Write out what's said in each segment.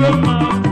Roma.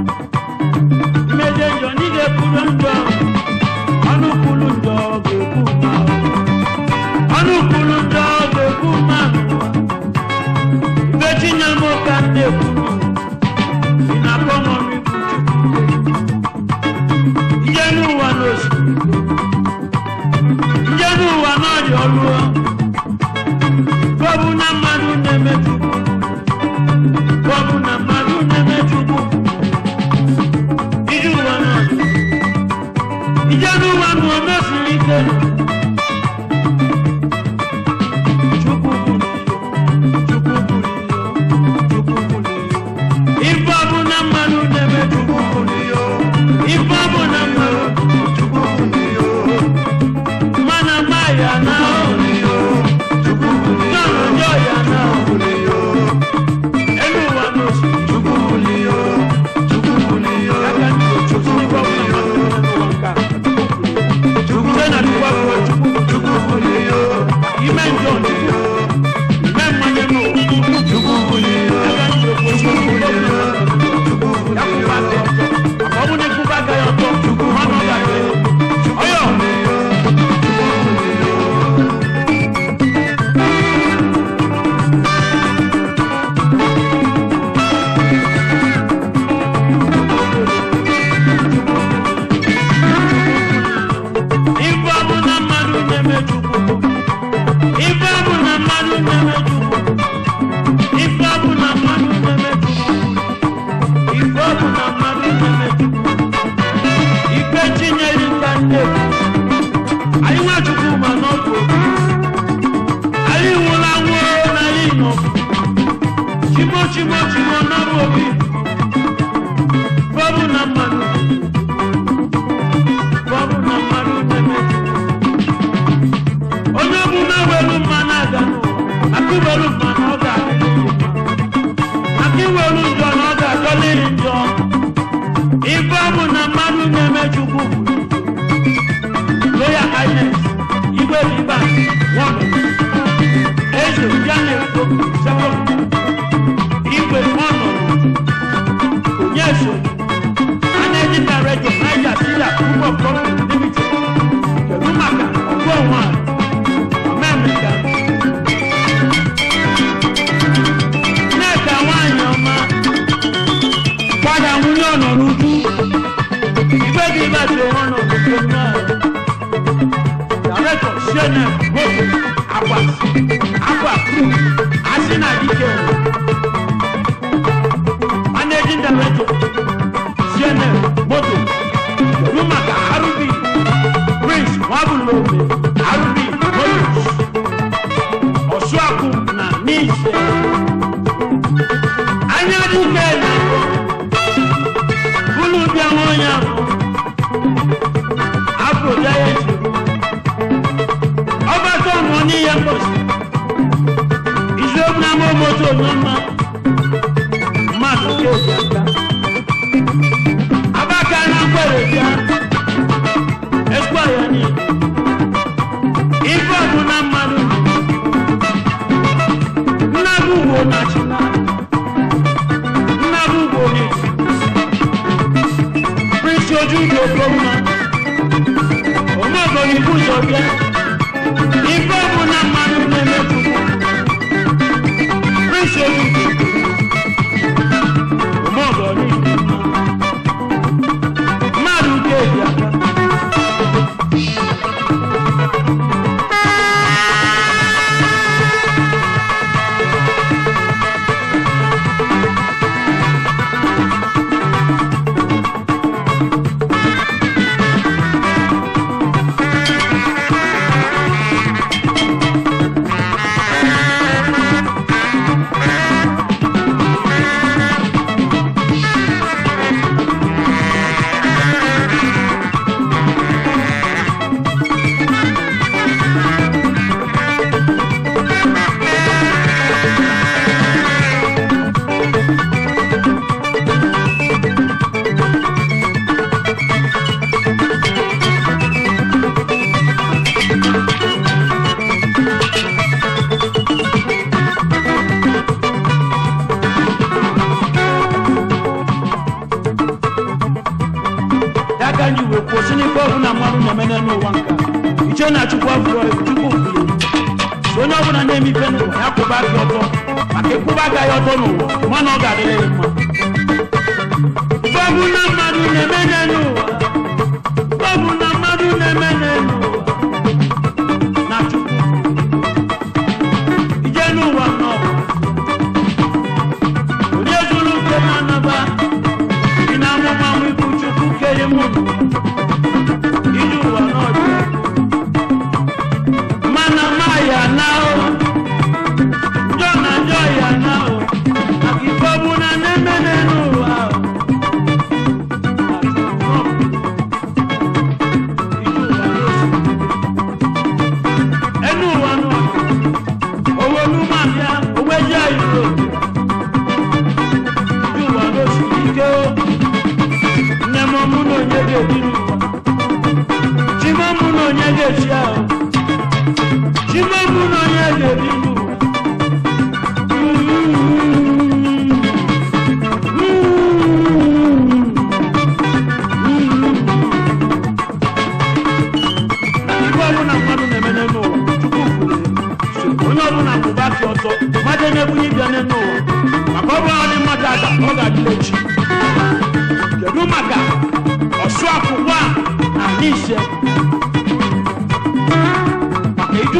obodo kwụsịna ikpe mmadụ na mene n'ụwa nka iche na achụkwa afọ chukwu kwuru so onye ọbụla na-eme ife n'ụwa ya kwụba aka ọtọ maka ịkwụba aka ọtọ n'ụwa mana ọ ga-adịrị ya mma na mmadụ na-eme n'ụwa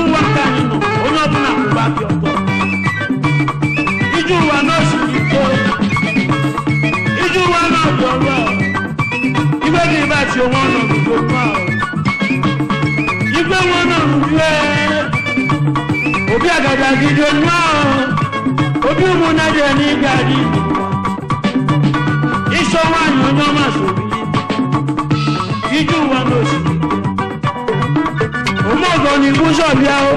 wa ka nínú onye ọbụla bụba bi ọtọ ije ụwa n'osi iko ije ụwa n'ọbụ ọrụ igwe gị ịbachi onwe ọnọ n'ugbo ahụ igwe nwe ọnọ n'ugbo obi agaghị agide onwe ahụ obi ni fún ṣọ̀bíà o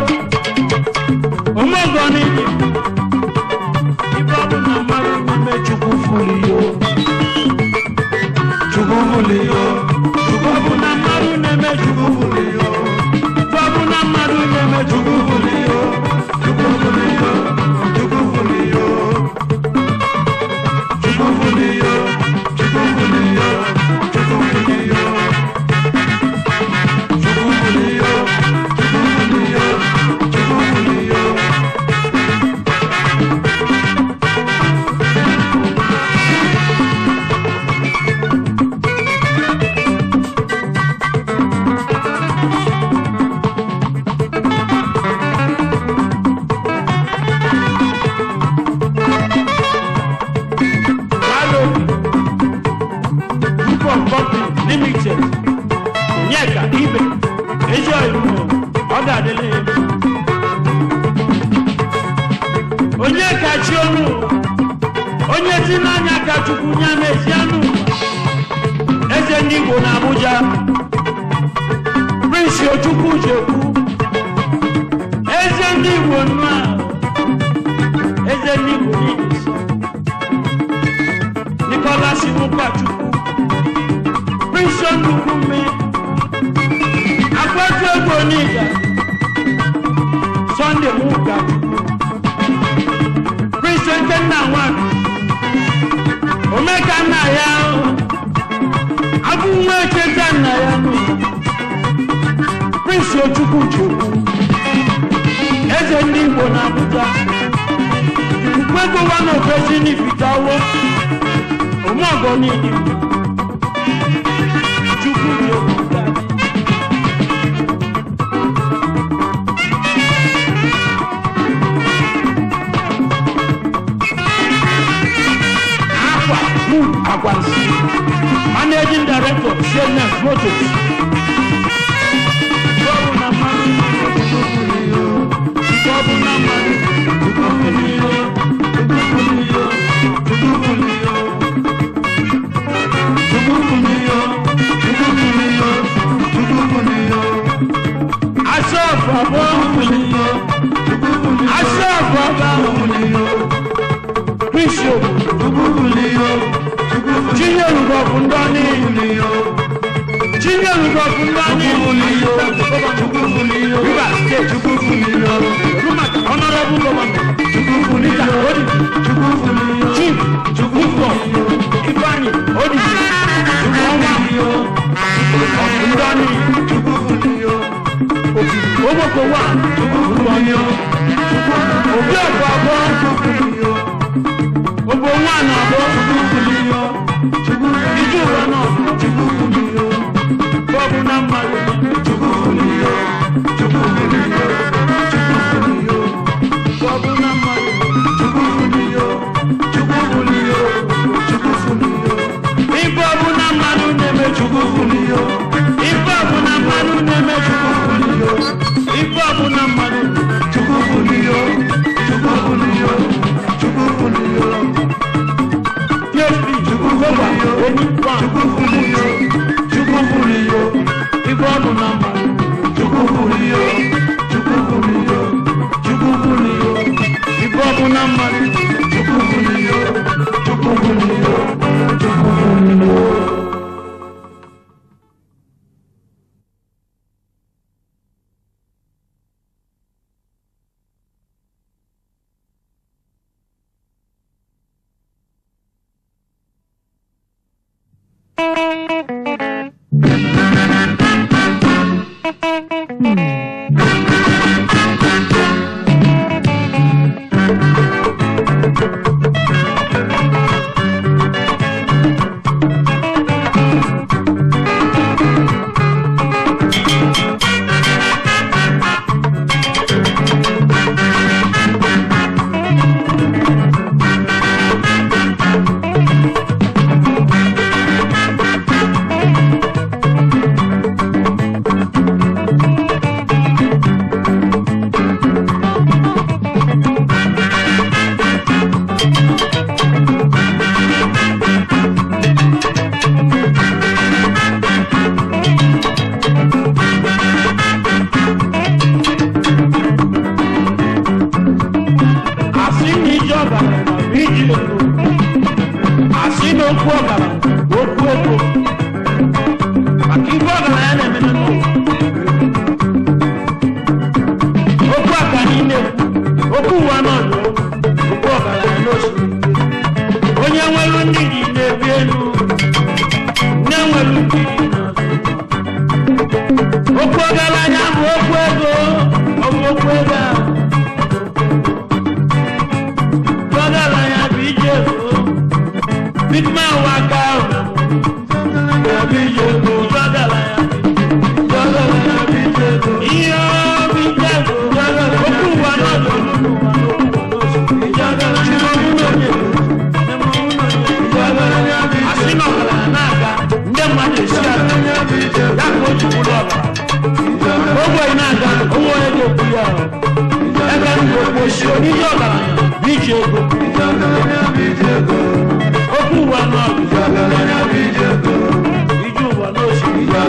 òun mọ̀gàn ni. Abuja Prince Ojukwu Jekwu eze ndị Igbo nnu a eze ndị Igbo niile so Nicholas Inukwachukwu Prince Ndukwume Akpatuego Oniga Sunday Nwugachukwu Prince Nkenna Nwanu Omeka nna iso chukwu eze ndị igbo na abụja mkpegowa na ofesi n'ifitawo omeọgọ niile chukwu chukwu Managing Director, CNN Motors. Riba, get you.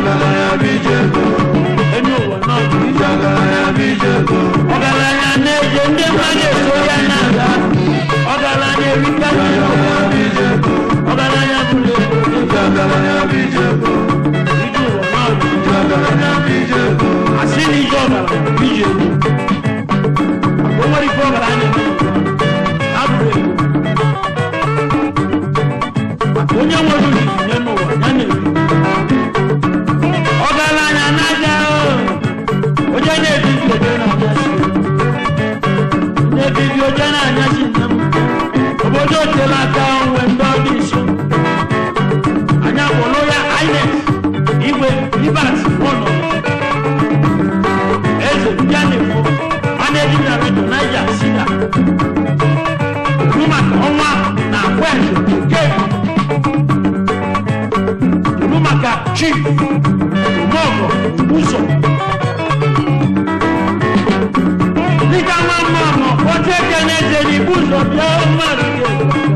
Meleğe bir cebim moko uso Nika mama mo, ote kenete ni buzo, ya o marike.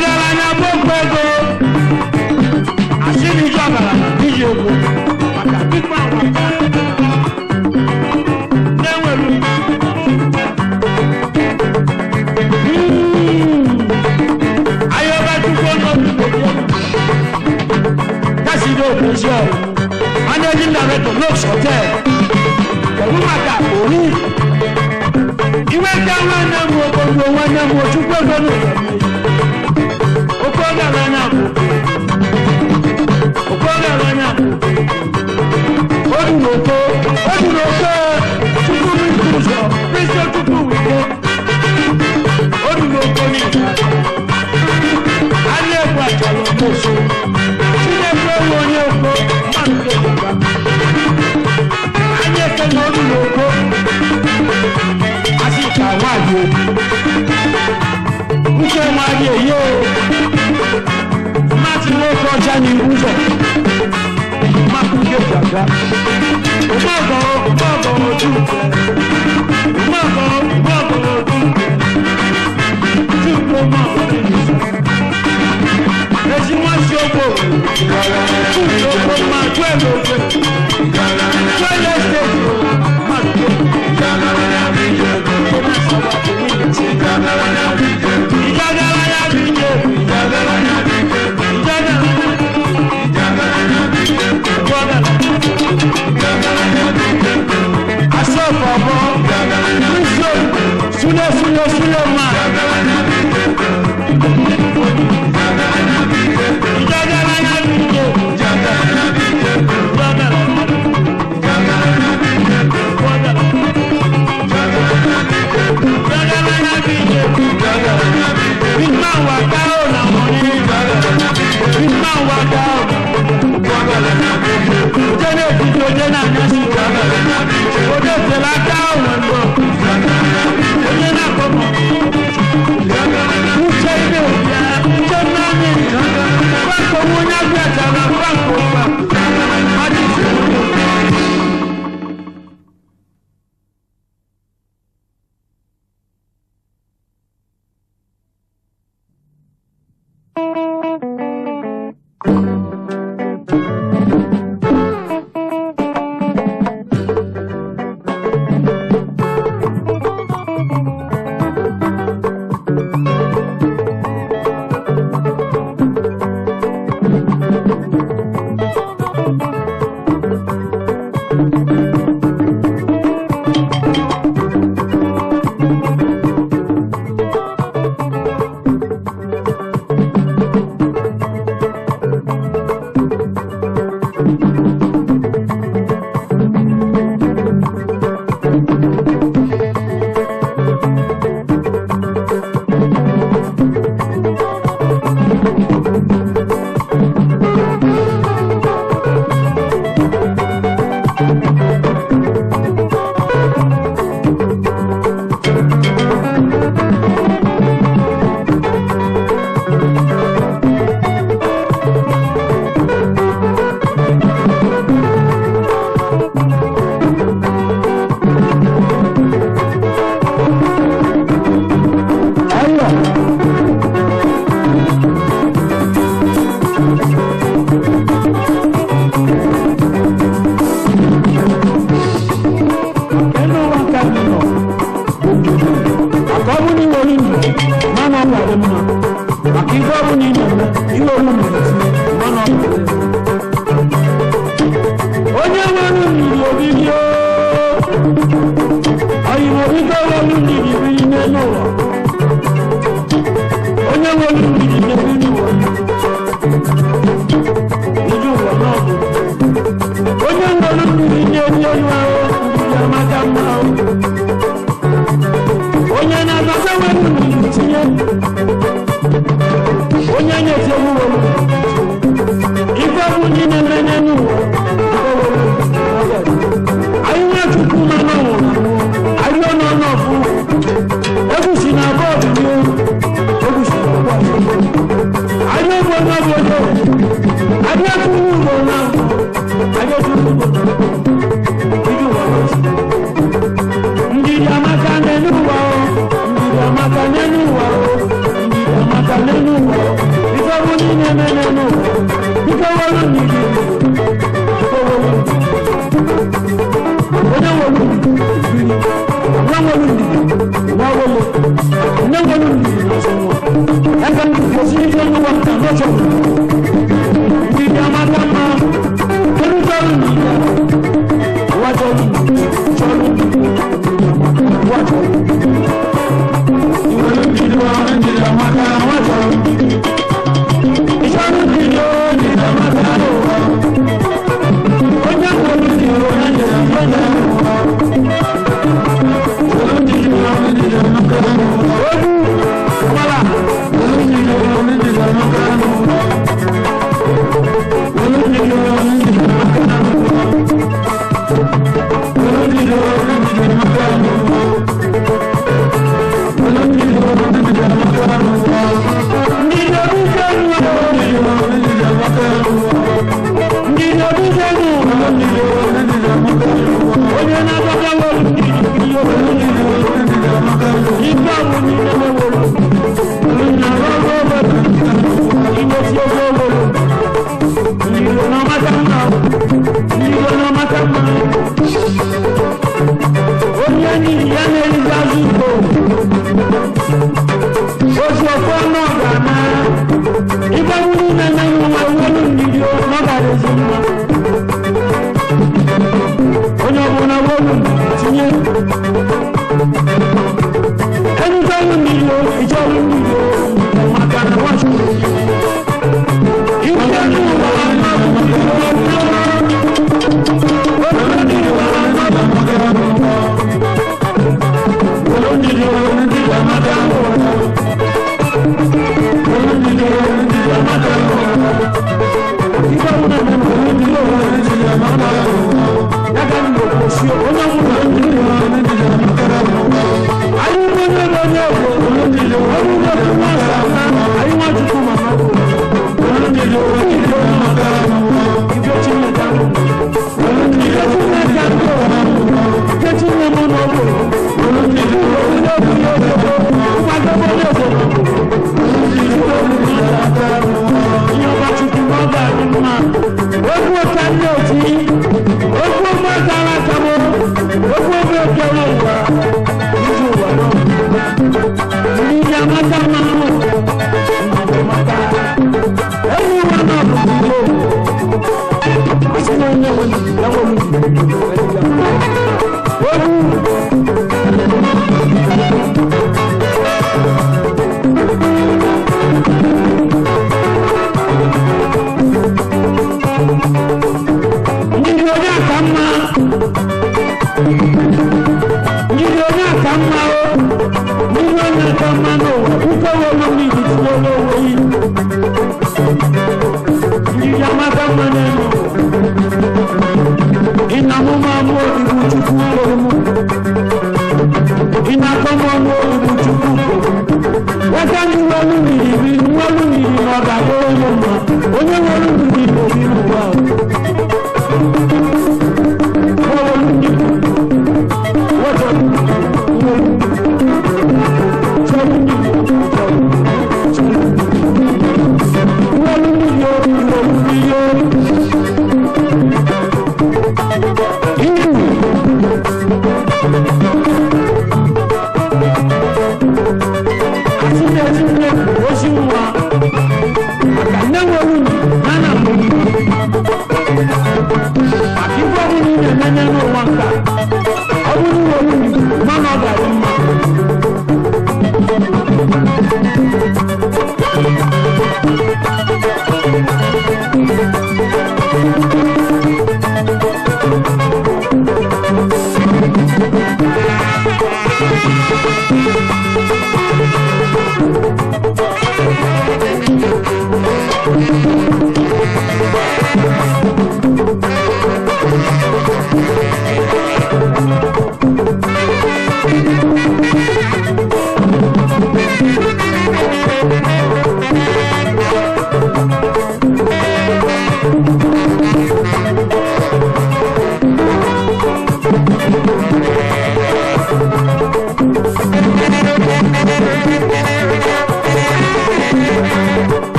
garagara na gbogbo ego àṣírí ìjọ àgbàlá níyì Deus te ama. Hallelujah.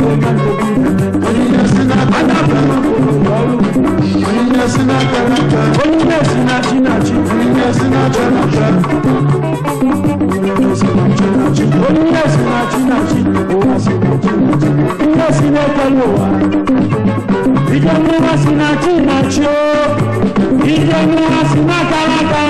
Ijamu asina chinacho, ijamu asina kalakala.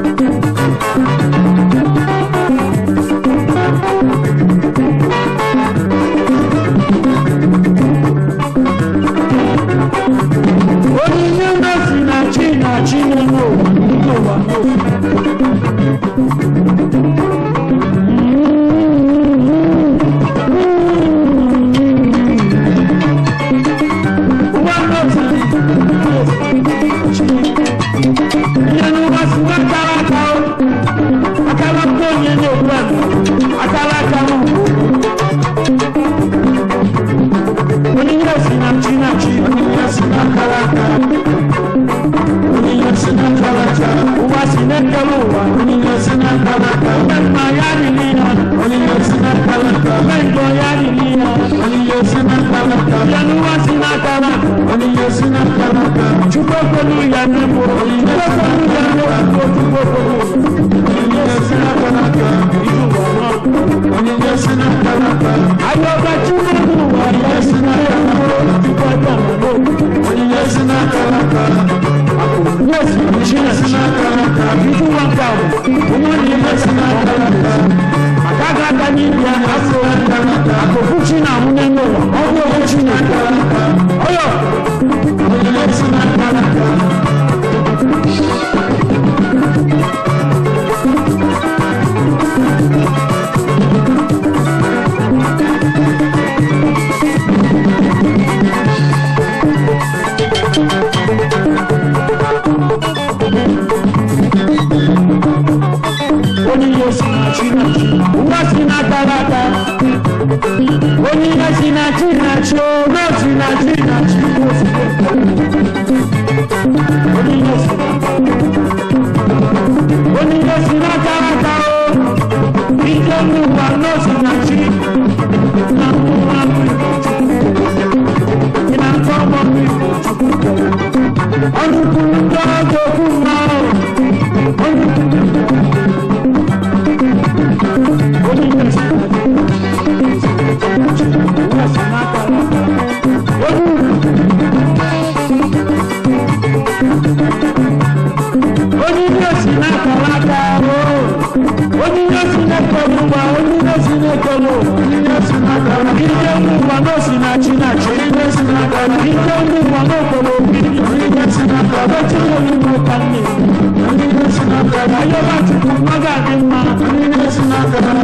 Ike mú wa náà sí náà jí náà jí. Ike mú wa náà kọ̀wé. i cikin rubutan ne ayo ba cikin magadin ma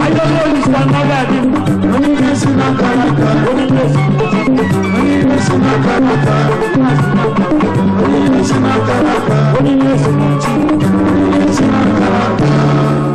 ayo lori sa magadin ma wani ne suna karata wani ne suna karata wani ne suna karata wani ne suna karata